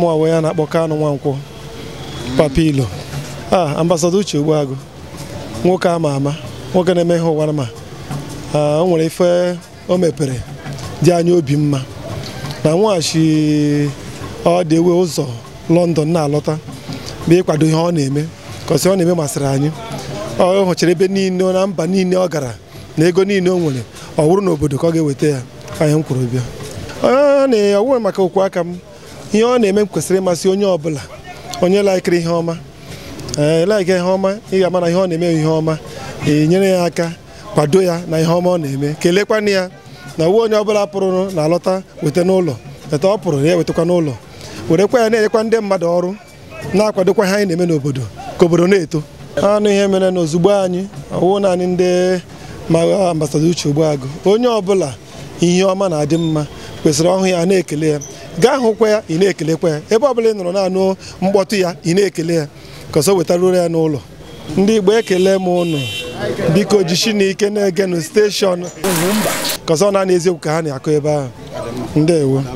mụ onwe ya na-akpọ Kanu Nwankwo papilo a ah, ambasada Uche Ogbuagụ nwoke ama ama nwoke na-eme ihe ụwara ma ah, o nwere ife o mepere dị anya obi mma na nweghachi ọ dị ewe ụzọ lọndọn na-alọta bụ ịkwado ihe ọ na-eme kọsi ọ na-eme masịrị anyị ọ hụchara ebe niile na mba niile ọ gara na ego niile o nwere ọ wụrụ n'obodo ka ọ ga-eweta ya anyị m kwuru bịa ọ nwere maka okwu aka m ihe ọ na-eme kwesịrị ịmasị onye ọbụla onye laikiri ihe ọma ee eh, ihe ọma ị ga-ama na ihe ọ na-eme ihe ọma e nyere ya aka kwado ya na ihe ọma ọ na-eme kelekwana ya na uwe onye ọbụla pụrụ na alọta weta n'ụlọ eta ọ pụrụ ya ewetakwa n'ụlọ werekwa ya na-enyekwa ndị mmadụ ọrụ na-akwadokwa ha anyị na-eme n'obodo ka obodo na-eto anụ ihe mere na ozugbo anyị ọwụ naanị ndị ma ambasada uche agụ onye ọbụla ihe ọma na-adị mma kwesịrị ọhụ ya na-ekele ya gaa hụkwa ya ị na-ekelekwa ya ebe ọbụla ị nọrọ na-anụ mkpọtụ ya ị na-ekele ya ka wetara wetaruru ya n'ụlọ ndị Igbo ekele m ụnụ biko jishi na ike na-egenu steshọn ka na-ana eziokwu ka ha na-akụ ebe ahụ ndewo